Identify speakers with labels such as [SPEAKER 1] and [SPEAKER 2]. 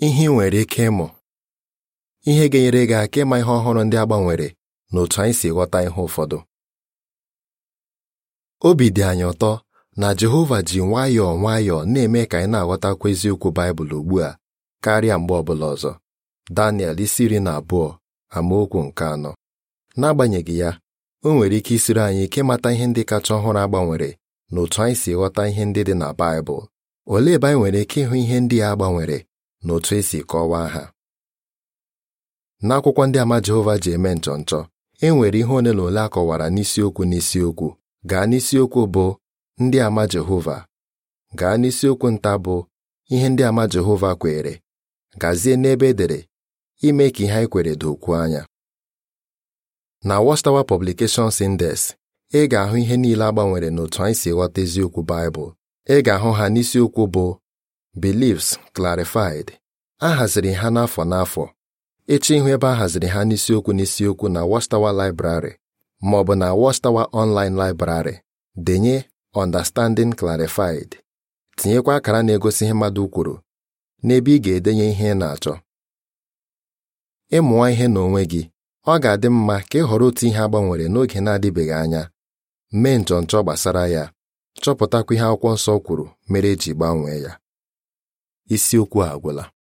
[SPEAKER 1] ihe ị nwere ike ịmụ ihe ga-enyere gị aka ịma ihe ọhụrụ ndị a gbanwere na otu anyị si ghọta ihe ụfọdụ obi dị anyị ụtọ na Jehova ji nwayọọ nwayọọ na-eme ka anyị na-aghọtakwa eziokwu Baịbụl ugbu a karịa mgbe ọbụla ọzọ Daniel isi iri na abụọ amaokwu nke anọ n'agbanyeghị ya o nwere ike isiri anyị ike ịmata ihe ndị kacha ọhụrụ agbanwere na otu anyị si ghọta ihe ndị dị na Baịbụl olee ebe anyị nwere ike ịhụ ihe ndị a gbanwere na otu esi kọwaa ha n'akwụkwọ ndị ama Jehova ji eme nchọnchọ e nwere ihe ole na ole a kọwara n'isiokwu n'isiokwu gaa n'isiokwu bụ ndị ama Jehova gaa n'isiokwu nta bụ ihe ndị ama Jehova kwere gazie n'ebe edere ime ka ihe anyị kwere dokwuo anya na Watchtower Publications Indes ị ga-ahụ ihe niile agbanwere n'otu anyị si ghọta eziokwu Baịbụl ị ga-ahụ ha n'isiokwu bụ Beliefs Clarified a haziri ha n'afọ n'afọ echi ihu ebe a haziri ha n'isiokwu n'isiokwu na Watchtower Library ma ọ bụ na Watchtower Online Library denye Understanding Clarified tinyekwa akara na-egosi ihe mmadụ kwuru n'ebe ị ga-edenye ihe ị na-achọ ịmụọ ihe n'onwe gị ọ ga-adị mma ka ị họrọ otu ihe agbanwere n'oge na-adịbeghị anya mee nchọnchọ gbasara ya chọpụtakwa ihe akwụkwọ nsọ kwuru mere eji gbanwee ya isiokwu a agwụla